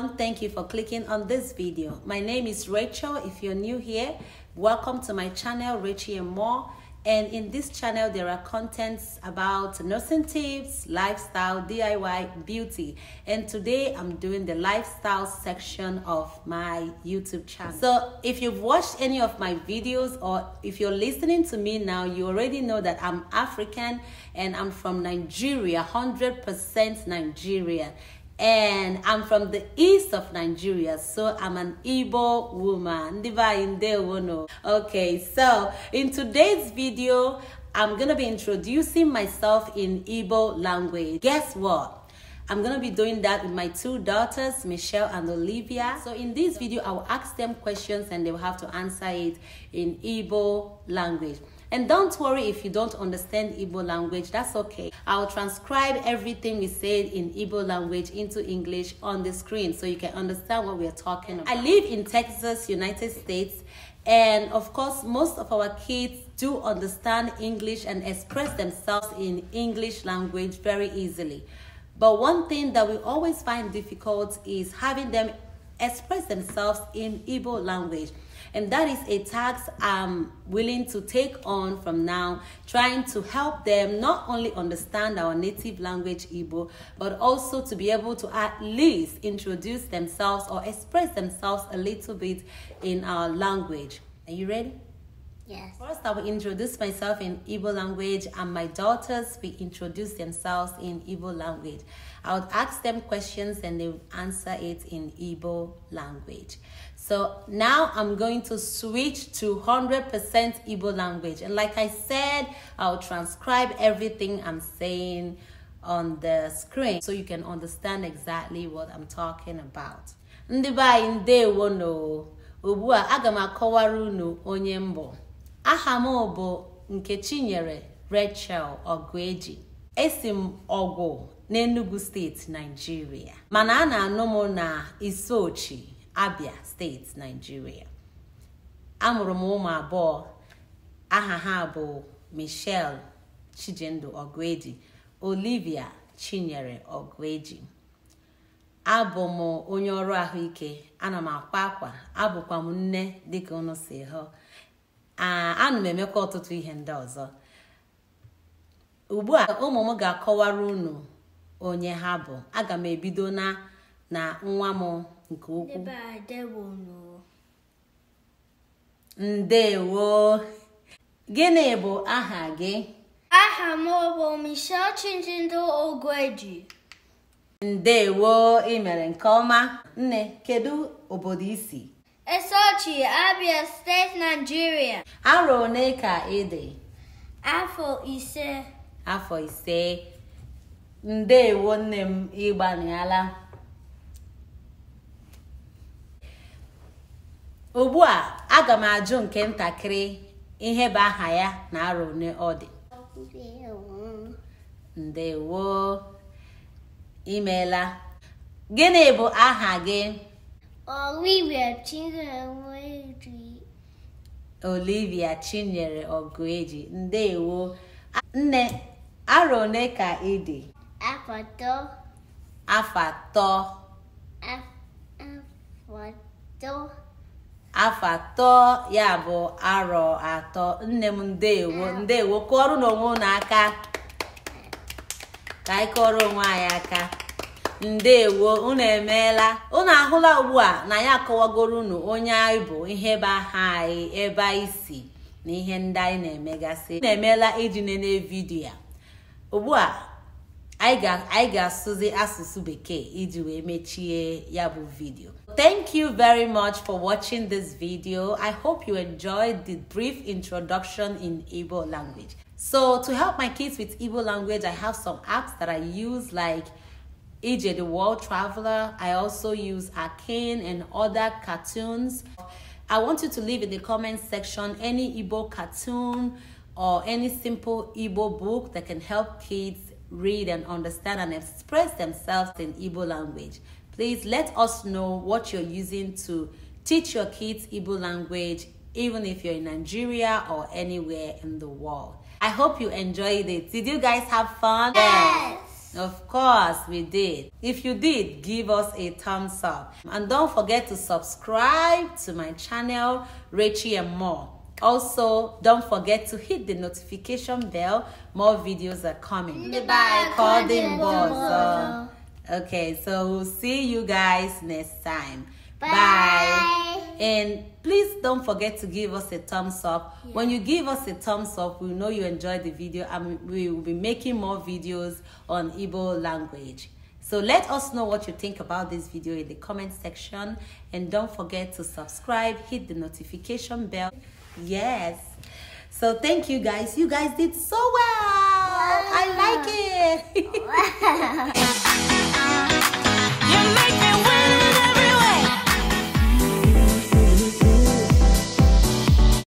everyone. Thank you for clicking on this video. My name is Rachel. If you're new here, welcome to my channel, Richie and More. And in this channel, there are contents about nursing tips, lifestyle, DIY, beauty. And today I'm doing the lifestyle section of my YouTube channel. So if you've watched any of my videos or if you're listening to me now, you already know that I'm African and I'm from Nigeria, 100% Nigerian and I'm from the east of Nigeria, so I'm an Igbo woman. Okay, so in today's video, I'm gonna be introducing myself in Igbo language. Guess what? I'm gonna be doing that with my two daughters, Michelle and Olivia. So in this video, I will ask them questions and they will have to answer it in Igbo language. And don't worry if you don't understand Igbo language, that's okay. I'll transcribe everything we said in Igbo language into English on the screen so you can understand what we are talking about. I live in Texas, United States, and of course, most of our kids do understand English and express themselves in English language very easily. But one thing that we always find difficult is having them express themselves in Igbo language. And that is a tax I'm willing to take on from now, trying to help them not only understand our native language Igbo, but also to be able to at least introduce themselves or express themselves a little bit in our language. Are you ready? Yes. First, I will introduce myself in Igbo language, and my daughters will introduce themselves in Igbo language. I would ask them questions and they would answer it in Igbo language. So now I'm going to switch to 100% Igbo language. And like I said, I'll transcribe everything I'm saying on the screen so you can understand exactly what I'm talking about. Ugbu a aga m akọwara unu onye mbụ. aha m bụ nke Chinyere Rachel Ogueji esi m ọgwụ n'Enugu steeti Naijiria mana a na-anụ m na Isochi Abia steeti Naijiria amụrụ m ụmụ abụọ aha ha bụ Michelle Chijindu Ogueji Olivia Chinyere Ogueji abụ m onye ọrụ ahụike ana m akwa akwa abụkwa m nne dịka unu si hụ ana m emekwa ọtụtụ ihe ndị ọzọ ugbu a ụmụ m ga-akọwara unu onye ha bụ aga m ebido na na nwa m nke ukwu ndewo gịnị bụ aha gị aha m bụ Michelle Chinjindo Ogweji ndewo ị mere nke ọma nne kedu obodo isi Esochi, Abia State, Nigeria. Arọ one ka ị dị? Afọ ise. Afọ ise. Ndeewo nne m ịgbanala. Ugbu a, aga m ajụ nke ntakịrị ihe bụ aha ya na arọ one ọ dị. Ndeewo. Imeela. Gịnị bụ aha gị? Olivia Chinyere Ogueji. Olivia Chinyere ndeewo nne arọ ka ị dị afọ atọ afọ atọ afọ atọ ya bụ arọ atọ nne m ndeewo ah. ndeewo kụọrọ n'onwe aka ka anyị kụọrọ onwe anyị aka ndewo unu emeela unu ahụla ugbu a na ya akọwagoro unu onye anyị bụ ihe be aha anyị ebe anyị si na ihe ndị anyị na-emegasị unu emeela iji nene vidiyo a ugbu a anyị ga-asụzi asụsụ bekee iji wee mechie ya bụ vidiyo Thank you very much for watching this video. I hope you enjoyed the brief introduction in Igbo language. So to help my kids with Igbo language, I have some apps that I use like EJ the World Traveler. I also use Arcane and other cartoons. I want you to leave in the comment section any Igbo cartoon or any simple Igbo book that can help kids read and understand and express themselves in Igbo language. Please let us know what you're using to teach your kids Igbo language, even if you're in Nigeria or anywhere in the world. I hope you enjoyed it. Did you guys have fun? Yes. Of course we did. If you did, give us a thumbs up. And don't forget to subscribe to my channel, Rachie and More. Also, don't forget to hit the notification bell. More videos are coming. Bye. Call the boss. Okay, so we'll see you guys next time. And please don't forget to give us a thumbs up. Yeah. When you give us a thumbs up, we know you enjoyed the video and we will be making more videos on Igbo language. So let us know what you think about this video in the comment section. And don't forget to subscribe, hit the notification bell. Yes. So thank you guys. You guys did so well. Wow. I like it. Wow.